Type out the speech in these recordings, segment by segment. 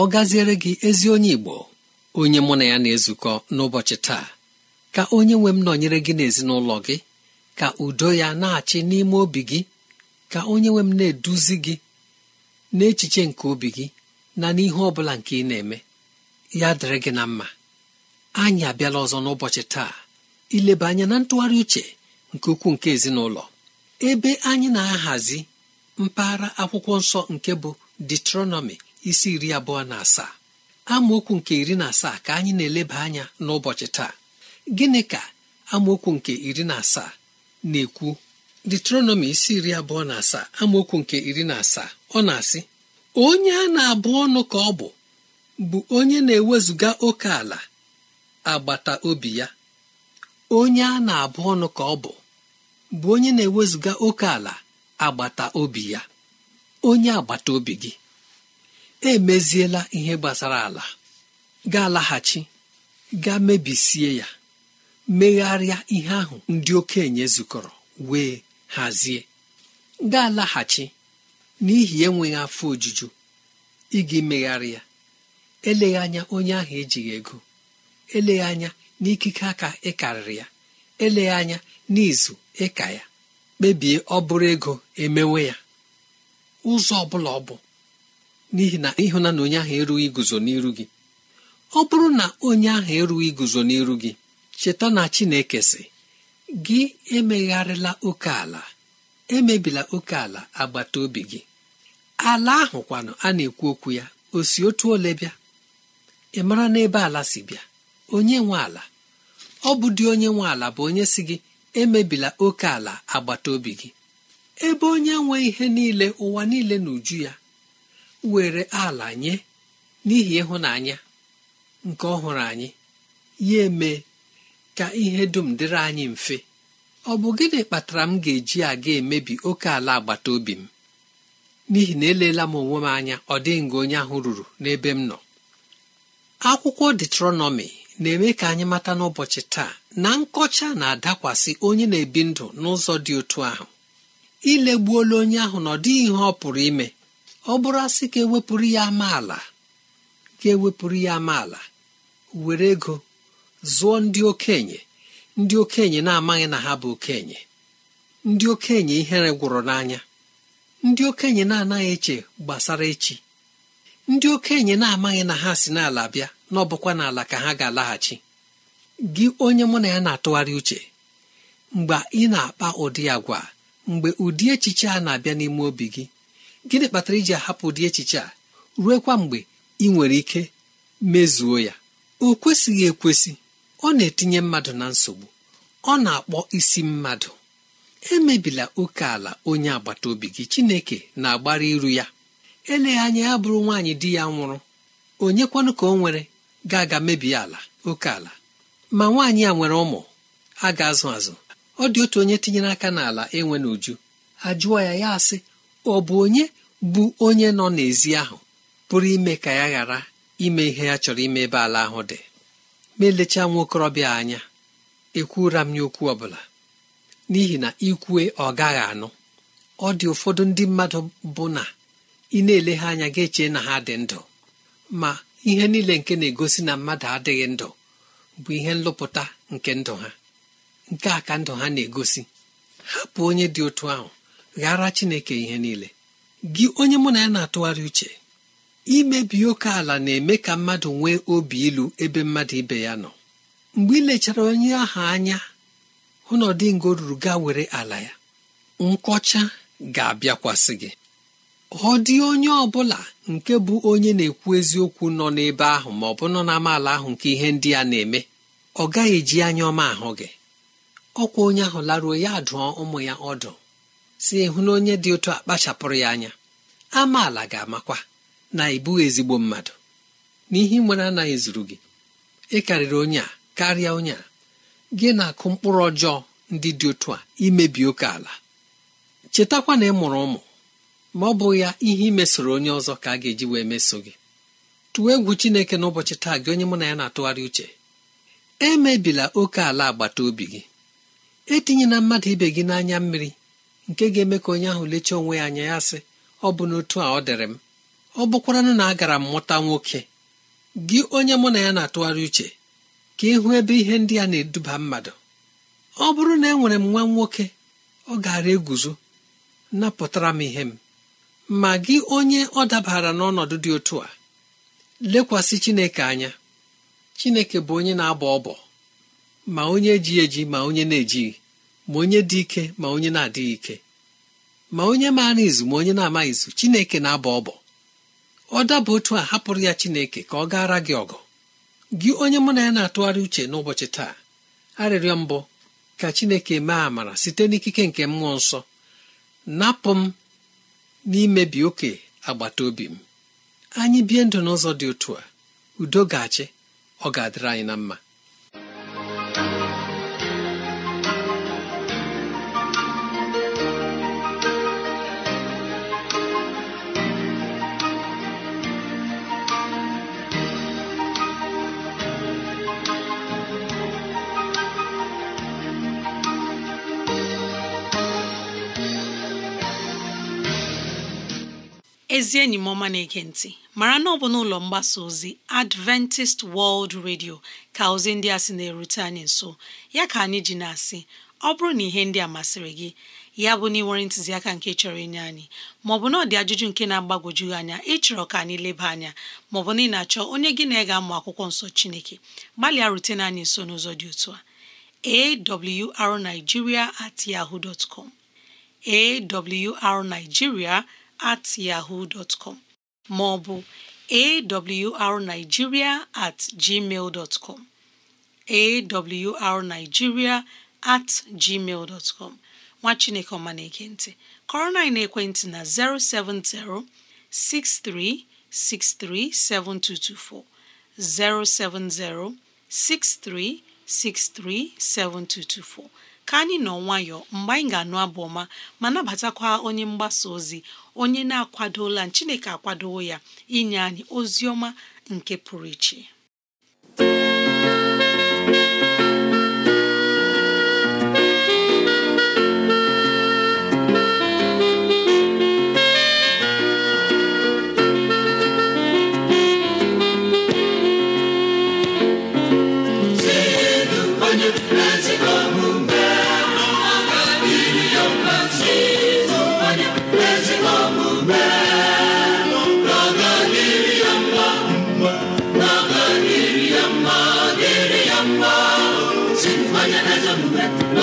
ọ gaziere gị ezi onye Igbo onye mụ na ya na-ezukọ n'ụbọchị taa ka onye nwe m nọnyere gị n'ezinụlọ gị ka udo ya na-achị n'ime obi gị ka onye nwe m na-eduzi gị n'echiche nke obi gị na n'ihe ọ bụla nke ị na-eme ya dịrị gị na mma anyị abịala ọzọ n'ụbọchị taa ileba anya na ntụgharị uche nke ukwuu nke ezinụlọ ebe anyị na-ahazi mpaghara akwụkwọ nsọ nke bụ detronọmi isi iri abụọ na asaa amaokwu nke iri na asaa ka anyị na-eleba anya n'ụbọchị taa gịnị ka amaokwu nke iri na asaa na-ekwu detronọmi isi iri abụọ na asaa amaokwu nke iri na asaa ọ na-asị onye a na-abụ ọnụ ka ọ bụ bụ onye na-ewezụga oke ala agbata obi ya onye a na-abụ ọnụ ka ọ bụ bụ onye na-ewezụga oke ala agbata obi ya onye agbata obi gị emeziela ihe gbasara ala ga-alaghachi ga mebisie ya megharịa ihe ahụ ndị okenye zukọrọ wee hazie ga-alaghachi n'ihi enweghị afọ ojuju ịga megharị ya eleghị anya onye ahụ ejighị ego eleghị anya n'ikike aka ịkarịrị ya eleghị anya n'izu ịka ya kpebie ọ bụrụ ego emewe ya ụzọ ọ bụla ọ bụ n'ihi na ịhụnana onye ahụ erughị iguzo n'iru gị ọ bụrụ na onye ahụ erughị iguzo n'iru gị cheta na Chineke sị gị emegharịla oke ala emebila oke ala agbata obi gị ala ahụ kwanụ a na-ekwu okwu ya o si otu ole bịa ị mara n'ebe ala si bịa onye nwe ala ọ bụ dị onye nwe ala bụ onye si gị emebila oke ala agbata obi gị ebe onye nwe ihe niile ụwa niile na uju ya were ala nye n'ihi ịhụnanya nke ọhụrụ anyị ya eme ka ihe dum dịrị anyị mfe ọ bụ gịnị kpatara m ga-eji aga emebi oke ala agbata obi m n'ihi na eleela m onwe m anya ọ dịghị nga onye ahụ ruru n'ebe m nọ akwụkwọ detronọmi na-eme ka anyị mata n'ụbọchị taa na nkọcha na-adakwasị onye na-ebi ndụ n'ụzọ dị otu ahụ ilegbuola onye ahụ na ọ dịghị ihe ọ pụrụ ime ọ bụrụ asị ka ewepụrụ ya amaala ka ewepụrụ ya amaala were ego zụọ ndị okenye ndị okenye na-amaghị na ha bụ okenye ndị okenye ihere gwụrụ n'anya ndị okenye na-anaghị eche gbasara echi ndị okenye na-amaghị na ha si n'ala bịa n'ọbụkwa n'ala ka ha ga-alaghachi gị onye mụ na ya na-atụgharị uche mgbe ị na-akpa ụdị agwa mgbe ụdị echiche a na-abịa n'ime obi gị gịnị kpatara iji ahapụ dị echiche a ruekwa mgbe ị nwere ike mezuo ya o kwesịghị ekwesị ọ na-etinye mmadụ na nsogbu ọ na-akpọ isi mmadụ emebila oke ala onye agbata obi gị chineke na-agbara iru ya eleghị anya ya bụrụ nwaanyị di ya nwụrụ kwanụ ka o nwere ga-aga mebie ala oke ala ma nwaanyị a nwere ụmụ a ga-azụ azụ ọ dị otu onye tinyere aka n'ala enwe n'uju ajụọ ya ya asị ọ bụ onye bụ onye nọ n'ezi ahụ pụrụ ime ka ya ghara ime ihe ya chọrọ ime ebe ala ahụ dị ma elechaa nwa okorobịa anya ekwura m ya okwu ọ bụla n'ihi na ikwue ọ gaghị anụ ọ dị ụfọdụ ndị mmadụ bụ na ị na-ele ha anya ga-eche na ha dị ndụ ma ihe niile nke na-egosi na mmadụ adịghị ndụ bụ ihe nlụpụta nke ndụ ha nke a ka ndụ ha na-egosi hapụ onye dị otu ahụ ghara chineke ihe niile gị onye mụ na ya na-atụgharị uche imebi oke ala na-eme ka mmadụ nwee obi ilu ebe mmadụ ibe ya nọ mgbe ị lechara onye ahụ anya hụ na ọdịngo ruru gaa were ala ya nkọcha ga-abịakwasị gị ọ dị onye ọbụla nke bụ onye na-ekwu eziokwu nọ n'ebe ahụ ma ọ bụ nọ n'amaala ahụ nke ihe ndị a na-eme ọ gaghị eji anya ọma ahụ gị ọkwa onye ahụ laruo ya dụọ ụmụ ya ọdụ si ịhụ na onye dị otu akpachapụrụ ya anya amaala ga-amakwa na ị ezigbo mmadụ n'ihi nwere anaghị zuru gị ị karịrị onye a karịa onye a gị na-akụ mkpụrụ ọjọọ ndị dị otu a imebi oke ala chetakwa na ị mụrụ ụmụ ma ọ bụghị ya ihe imesoro onye ọzọ ka a ga-eji wee meso gị Tụwa egwu chineke n'ụbọchị taa gị onye mụ na ya na-atụgharị uche emebila oke ala agbata obi gị etinyela mmadụ ibe gị n'anya mmiri nke ga-eme ka onye ahụ lechaa onwe ya anya ya sị ọ bụ n'otu a ọ dịrị m ọ bụkwaranụ na agara m mụta nwoke gị onye mụ na ya na-atụgharị uche ka ịhụ ebe ihe ndị a na-eduba mmadụ ọ bụrụ na enwere m nwa nwoke ọ gara eguzo napụtara m ihe m ma gị onye ọ dabara n'ọnọdụ dị otu a lekwasị Chineke anya Chineke bụ onye na-abọ ọbọ ma onye na-ejighị eji ma onye na-ejighị ma onye dị ike ma onye na-adịghị ike ma onye maara izu ma onye na-amaghị izu chineke na-abọ ọbọ ọ daba otu a hapụrụ ya chineke ka ọ gaara gị ọgụ gị onye mụ na ya na-atụgharị uche n'ụbọchị taa arịrịọ mbụ ka chineke mee amara site n'ikike nke mmụọ nsọ napụ m n'imebi oke agbata obi m anyị bie ndụ n'ụzọ dị otu a udo ga-achị ọ ga-adịrị anyị na mma ezi enyi m ọma na-ege ntị mara na ọ bụ n'ụlọ mgbasa ozi Adventist World Radio ka ozi ndị a sị na-erute anyị nso ya ka anyị ji na-asị ọ bụrụ na ihe ndị a masịrị gị ya bụ na ịnwere ntụziaka nke chọrọ inye anyị maọbụ na ọ dị ajụjụ nke na-agbagwoju anya ịchọrọ ka anyị leba anya maọbụ na ị na-achọ onye gị na ị ga-amụ akwụkwọ nsọ Chineke gbalịa rutena anyị nso n'ụzọ dị otu a awrnigeria at yahoo dot com awrnigeria at yahoo dot com ma ọ bụ at gmail at gmail nwa chineke ọma na-ege ntị kọrọ na ekwentị na 070 6363 7224 070 6363 7224 ka anyị nọ nwayọ mgbe anyị ga-anụ abụ ọma ma nabatakwa onye mgbasa ozi onye na-akwadola Chineke akwadowo ya inye anyị ozi ọma nke pụrụ iche Let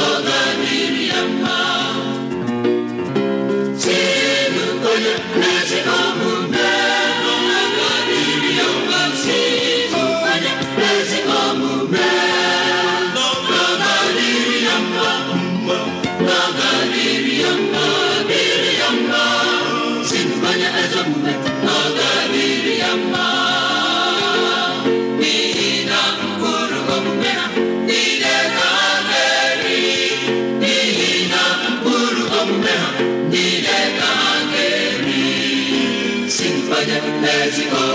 Amazing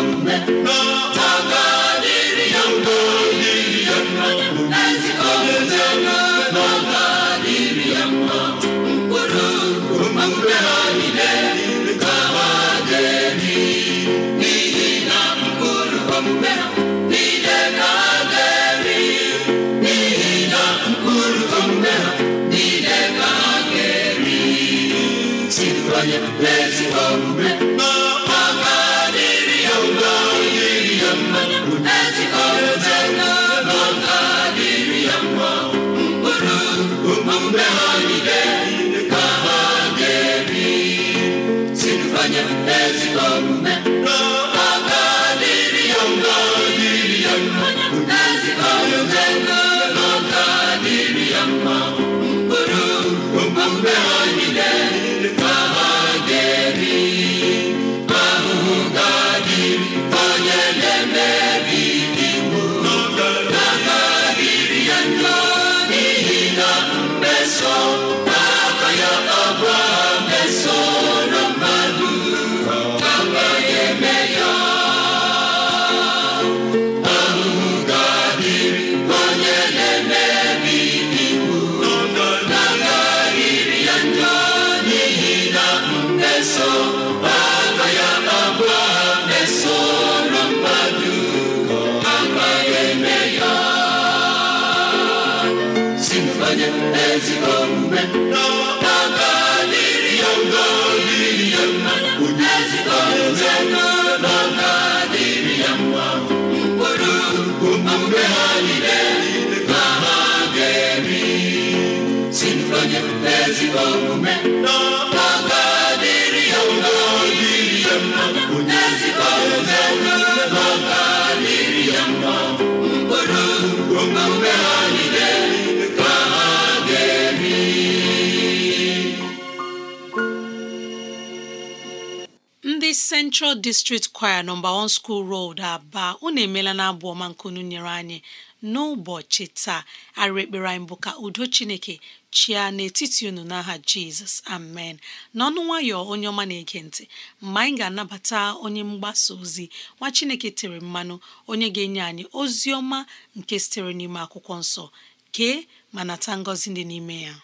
ndị Central District Choir nọmba 1 School Road Aba unu emela na abụ ọma nkunu nyere anyị n'ụbọchị taa arekpere anyị bụ ka udo Chineke chia n'etiti unu n'aha jizọs amen n'ọnụ nwayọọ onye ọma na-ege ntị mgbe anyị ga-anabata onye mgbasa ozi nwa chineke tere mmanụ onye ga-enye anyị ozi ọma nke sitere n'ime akwụkwọ nsọ kee ma nata ngọzi dị n'ime ya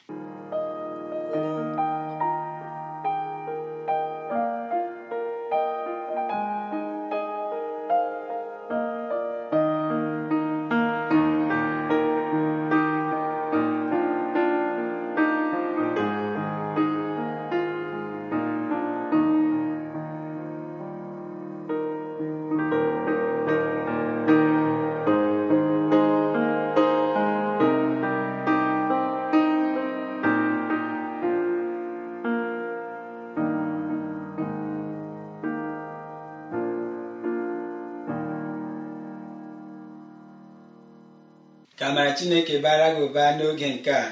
amara chineke bara gị ụba n'oge nke a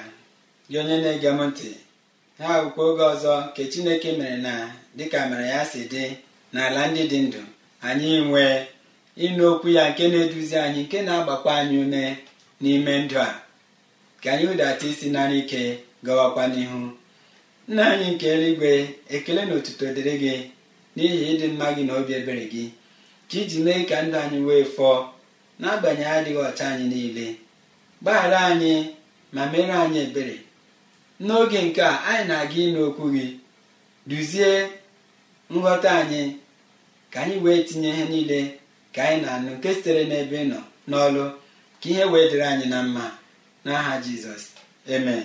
gị onye na-ege m ntị ha bụkwa oge ọzọ nke chineke mere na dịka mere ya si dị n'ala ndị dị ndụ anyị nwee ịnụ okwu ya nke na-eduzi anyị nke na-agbakwa anyị ume n'ime ndụ a ka anyị ụdata isi nara ike gawakwa n'ihu nna anyị nke eluigwe ekele na otuto dịrị gị n'ihi ịdị mma gị na obi ebere gị ka iji mee ka ndụ anyị wee fọọ n'agbanyeghị adịghị ọcha anyị niile gbaghara anyị ma mere anyị ebere n'oge nke a anyị na-aga ịnụ okwu gị duzie nghọta anyị ka anyị wee tinye ihe niile ka anyị na-anụ nke sitere n'ebe nọ n'ọlụ ka ihe wee dịrị anyị na mma n'aha jizọs amen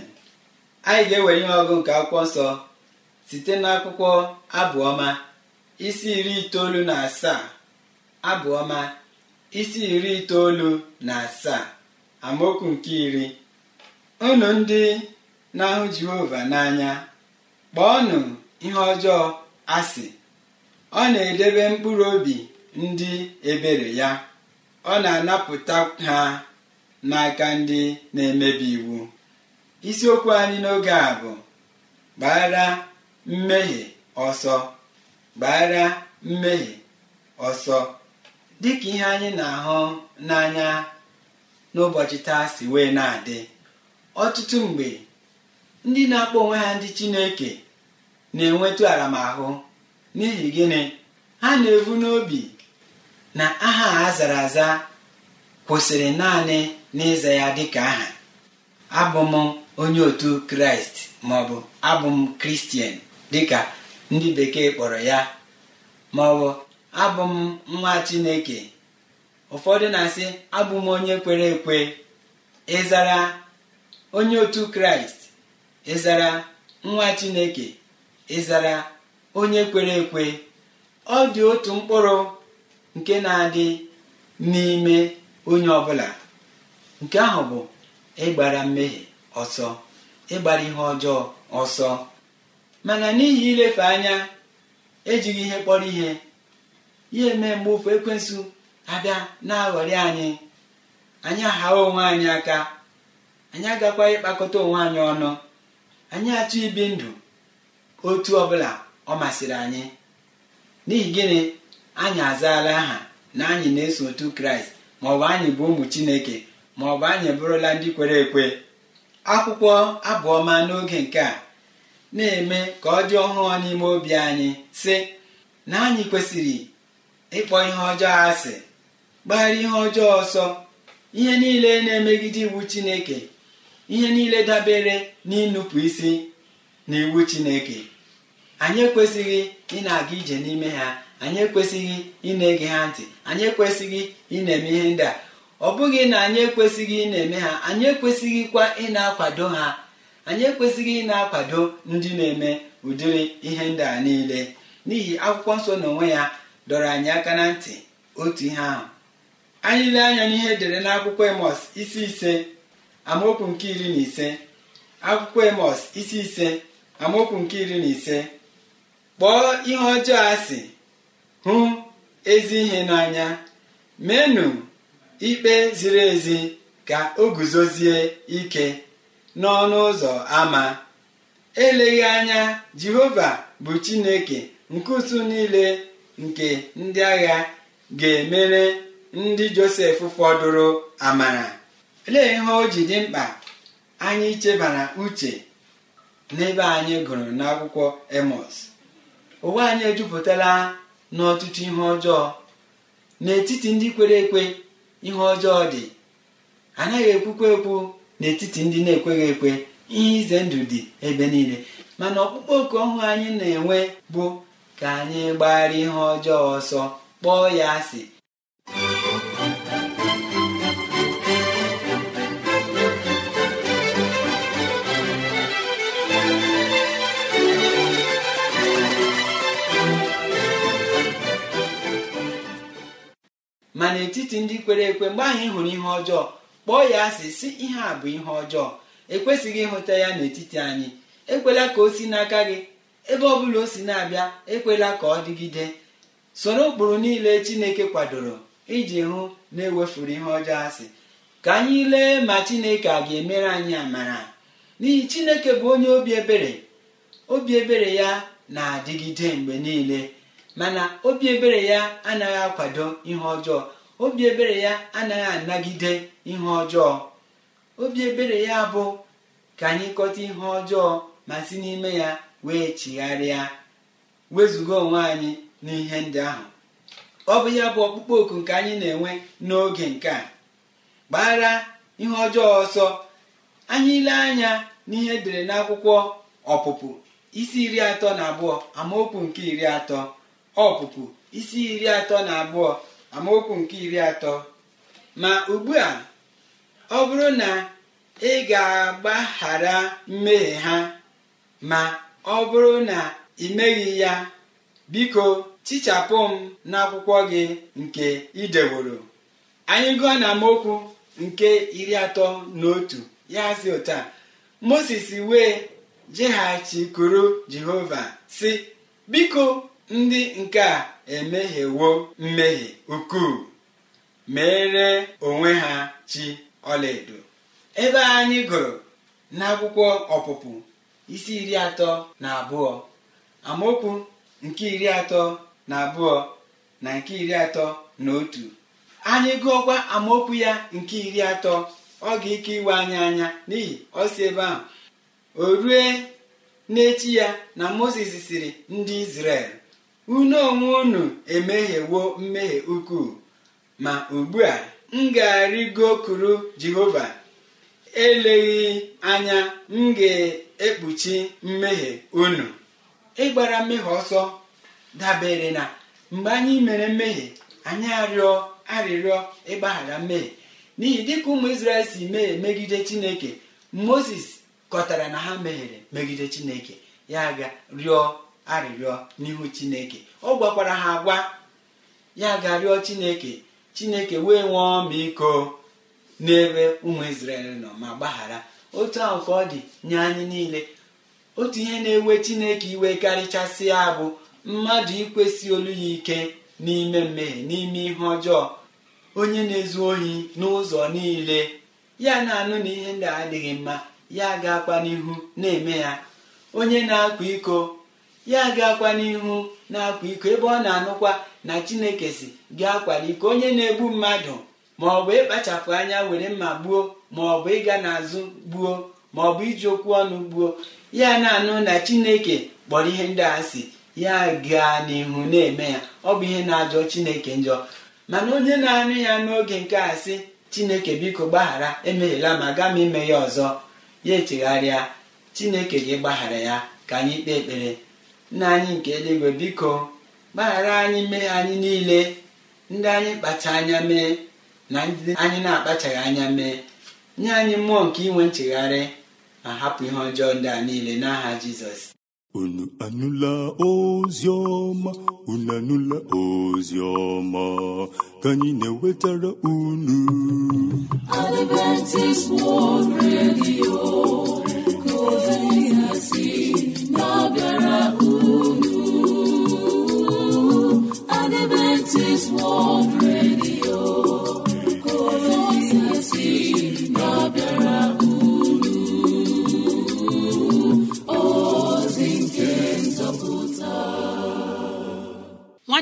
anyị ga-ewere ihe ọgụ nke akwụkwọ nsọ site n'akwụkwọ abụọma isi iri itoolu na asaa abụọma isi iri itoolu na asaa amaokwu nke iri unu ndị na-ahụ jehova n'anya kpọọnụ ihe ọjọọ asị ọ na-edebe mkpụrụ obi ndị ebere ya ọ na-anapụta ha n'aka ndị na-emebi iwu isiokwu anyị n'oge a bụ gbara mmehie ọsọ gbara mmehie ọsọ dịka ihe anyị na-ahụ n'anya n'ụbọchị taa si wee na-adị ọtụtụ mgbe ndị na-akpọ onwe ha ndị chineke na-enwetu aramahụ n'ihi gịnị ha na-evu n'obi na aha a zara aza kwụsịrị naanị n'ịza ya dịka aha abụ m onye otu kraịst maọbụ abụ m kristian dịka ndị bekee kpọrọ ya maọbụ abụ m nwa chineke ụfọdụ na-asị abụ m onye kwere ekwe ịzara onye otu kraịst ịzara nwa chineke ịzara onye kwere ekwe ọ dị otu mkpụrụ nke na-adị n'ime onye ọbụla nke ahụ bụ ịgbara mmehie ọsọ ịgbara ihe ọjọọ ọsọ mana n'ihi ilefe anya ejighị ihe kpọrọ ihe ya eme mgbe ofu ekwensụ abịa na-aghọrị anyị anyị aghawa onwe anyị aka anyị agakwa ịkpakọta onwe anyị ọnụ anyị achọ ibi ndụ otu ọbụla ọ masịrị anyị n'ihi gịnị anyị azaala aha na anyị na-eso otu kraịst maọbụ anyị bụ ụmụ chineke maọbụ anyị bụrụla ndị kwere ekwe akwụkwọ abụọma n'oge nke a na-eme ka ọ dị ọhụrụ n'ime obi anyị sị na anyị kwesịrị ịkpọ ihe ọjọọ asị gbagharị ihe ọjọọ ọsọ ihe niile na-emegide iwu chineke ihe niile dabere n'ịnụpụ isi na iwu chineke anyị ekwesịghị ị na-aga ije n'ime ha anyị ekwesịghị ị na-ege ha ntị anyị ekwesịghị ị na-eme ihe ndị a ọ bụghị na anyị ekwesịghị ị na-eme ha anyị ekwesịghịkwa ị na-akwado ha anyị ekwesịghị ị na-akwado ndị na-eme ụdịrị ihe ndị a niile n'ihi akwụkwọ nsọ onwe ya dọrọ anyị aka na ntị otu ihe ahụ anyị lee anya n'ihe edere n'akwụkwọ emọs isi ise amaokwu nke iri na ise akwụkwọ emọs isi ise amaokwu nke iri na ise kpọọ ihe ọjọọ asị hụ ezi ihe n'anya menụ ikpe ziri ezi ka o guzozie ike n'ọnụ ụzọ ama eleghị anya jehova bụ chineke nke usu niile nke ndị agha ga-emere ndị josef fọdụrụ amara lee ihe o ji dị mkpa anyị chebara uche n'ebe anyị gụrụ n'akwụkwọ emọs ụwa anyị ejupụtala n'ọtụtụ ihe ọjọọ n'etiti ndị kwere ekwe ihe ọjọọ dị anaghị ekwukwa ekwu n'etiti ndị na-ekweghị ekwe ihe ize ndụ dị ebe niile mana ọkpụkpọ oku ọhụụ anyị na-enwe bụ ka anyị gbara ihe ọjọọ ọsọ kpọọ ya asị ma n'etiti ndị kwere ekwe mgbe ahụ hụrụ ihe ọjọọ kpọọ ya asị si ihe a bụ ihe ọjọọ ekwesịghị ịhụta ya n'etiti anyị ekwela ka o si n'aka gị ebe ọ bụla o si na-abịa ekwela ka ọ dịgide soro ụkpụrụ niile chineke kwadoro iji hụ na ewefuru ihe ọjọọ asị ka anyị lee ma chineke a ga-emere anyị amara n'ihi chineke bụ onye obi ebere obi ebere ya na-adịgide mgbe niile mana obi ebere ya anaghị akwado ihe ọjọọ obi ebere ya anaghị anagide ihe ọjọọ obi ebere ya bụ ka anyị kọta ihe ọjọọ ma si n'ime ya wee chigharịa wezụga onwe anyị n'ihe ndị ahụ ọ bụ ya bụ ọkpụkpọ oku nke anyị na-enwe n'oge nke a gbara ihe ọjọọ ọsọ anyị ile anya n'ihe edere n'akwụkwọ ọpụpụ isi iri atọ na abụọ amaokwu nke iri atọ ọpụpụ isi iri atọ na abụọ amaokwu nke iri atọ ma ugbu a ọ bụrụ na ị ga-agbaghara mmehie ha ma ọ bụrụ na ị meghị ya biko chichapụ m n'akwụkwọ gị nke ideworo anyị gụọ na amaokwu nke iri atọ na otu ya si ụta moses wee jeghachikuru jehova si biko ndị nke a emehiewo mmehie ukwuu mere onwe ha chi ọlaedo ebe anyị gụrụ n'akwụkwọ ọpụpụ isi iri atọ na abụọ amaokwu nke iri atọ na abụọ na nke iri atọ na otu anyị gụọkwa amaokwu ya nke iri atọ ọ ga-ike iwe anyị anya n'ihi ọ si ebe ahụ o rue n'echi ya na moses siri ndị izrel unu onwe unu emehiewo mmehie ukwu ma ugbu a m ga-arịgo kuru jehova eleghị anya m ga-ekpuchi mmehie unu ịgbara mmehie ọsọ dabere na mgbe anyị mere mmehie anyị arịọ arịrịọ ịgbaghara mmehie n'ihi dịka ụmụ Izrel si mee megide chineke moses kọtara na ha mehiere megide chineke ya ga rịọ arịrịọ n'ihu chineke ọ gwakwara ha agwa ya ga-arịọ chineke chineke wee nwee ọmaiko n'ebe ụmụ Izrel nọ ma gbaghara otu ahụ ka ọ dị nye anyị niile otu ihe na-ewe chineke iwe karịchasị abụ bụ mmadụ ikwesị olu ya ike n'ime mmehie n'ime ihe ọjọọ onye na-ezu ohi n'ụzọ niile ya na-anụ na ihe ndị adịghị mma ya ga-akpa n'ihu na-eme ya onye na-akwa iko ya gakwa n'ihu na-akwa iko ebe ọ na-anụkwa na chineke si ga akwala iko onye na-egbu mmadụ ma ọ bụ ịkpachapụ anya were mma gbuo ma ọ bụ ịga n'azụ gbuo ma ọ bụ iji okwu ọnụ gbuo ya na-anụ na chineke kpọrọ ihe ndị a si ya gaa n'ihu na-eme ya ọ bụ ihe na-ajọ chineke njọ mana onye na-anụ ya n'oge nke a sị chineke biko gbaghara emeghela ma gaa m ime ya ọzọ ya echegharịa chineke gị gbaghara ya ka anyị kpee ekpere nna anyị nke eluigwe biko gbaghara anyị mmehie anyị niile ndị anyị kpacha anya mee na ndị anyị na-akpachaghị anya mee nye anyị mmụọ nke inwe nchegharị ma hapụ ihe ọjọọ ndị a niile n'aha jizọs unu anụla ozi ọma unu anụla ozi ọma ka anyị na-ewetara unu Adventist World Radio ka ozi si na-abịara unu Nwa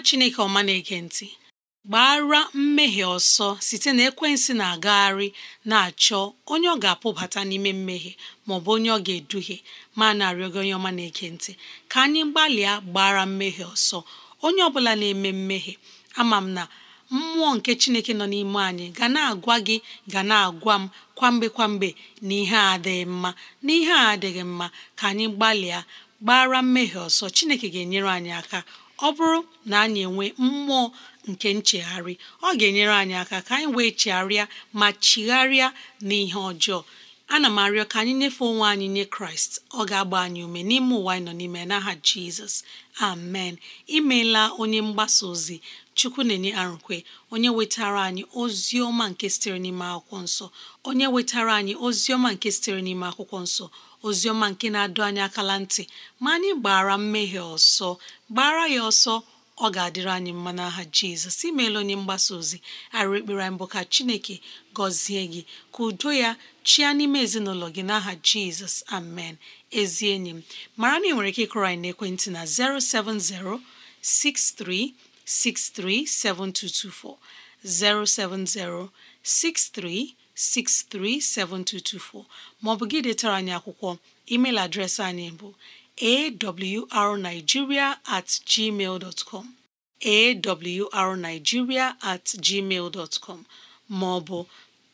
chineke ọma na-ege ntị gbara mmehie ọsọ site na ekwensị na-agagharị na-achọ onye ọ ga-apụbata n'ime mmehie bụ onye ọ ga-eduhie ma na-arịọ gị onye ọma na-ege ntị ka anyị gbalịa gbara mmehie ọsọ onye ọ bụla na-eme mmehie ama m na mmụọ nke chineke nọ n'ime anyị ga na-agwa gị ga na-agwa m kwamgbe kwamgbe na ihe a adịghị mma na a adịghị mma ka anyị gbalịa gbara mmehie ọsọ chineke ga-enyere anyị aka ọ bụrụ na anyị enwe mmụọ nke nchegharị ọ ga-enyere anyị aka ka anyị wee chegharịa ma chigharịa n'ihe ọjọọ ana m arịọ ka anyị nyefee onwe anyị nye kraịst ọ ga-agba anyị ume n'ime ụwa anyị nọ n'ime n'aha jizọs amen imeela onye mgbasa ozi chukwu na-enye arụkwe onye wetara anyị ozi ọma nke sitere n'ime akwụkwọ nsọ onye wetara anyị ozi ọma nke sitere n'ime akwụkwọ nsọ ozi ọma nke na-adụ anyị akala ntị ma anyị gbara mmehie ọsọ gbara ya ọsọ ọ ga-adịrị anyị mma n'aha jizọs imeela onye mgbasa ozi arụ ekpere anyị mbụ ka chineke gọzie gị ka udo ya chia n'ime ezinụlọ gị n'aha jizọs amen ezi enyi m mara na ị nwere ike ịkụrọ anyị n'ekwentị na 070 6363 7224 070 6363 7224 maọbụ gị detara anyị akwụkwọ email adreesị anyị bụ awrnigeria at gmail dot com awrnigeria at com ma ọ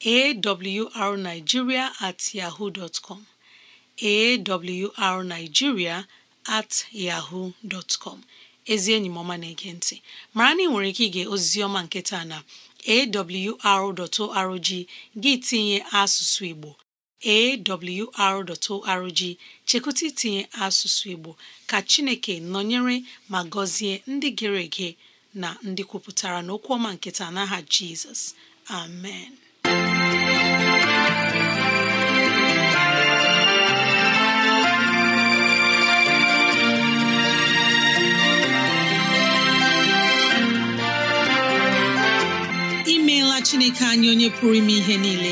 awrnigeria at yahoo dot com awrnigeria at yahoo dot com ezi enyi na-ege ntị mara na ị nwere ike ige ozizi ọma nke taa na awr.org gị tinye asụsụ Igbo awr.org chekwụta itinye asụsụ Igbo ka Chineke nọnyere ma gọzie ndị gere ege na ndị kwupụtara n'okwu ọma nketa n'aha Jizọs amen imeela Chineke anyị onye pụrụ ime ihe niile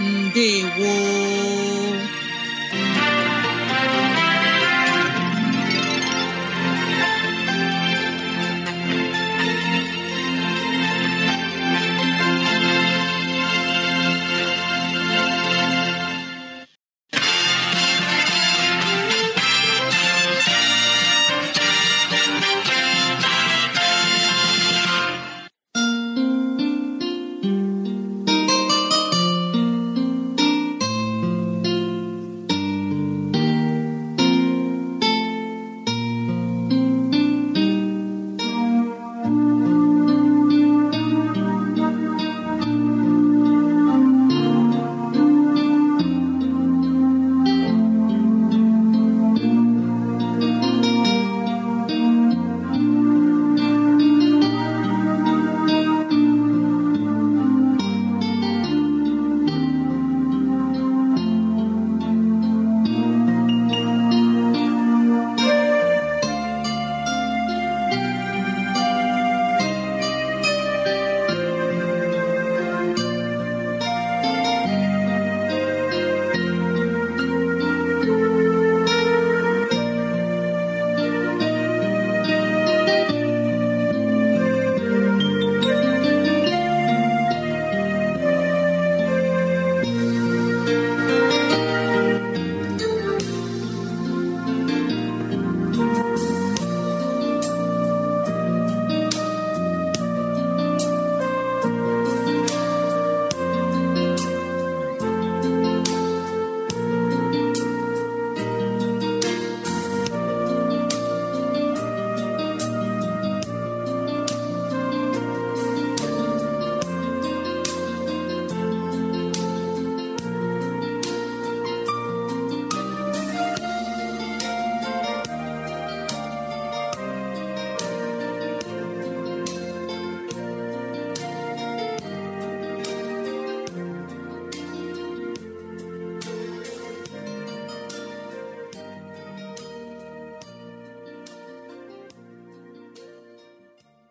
ndewo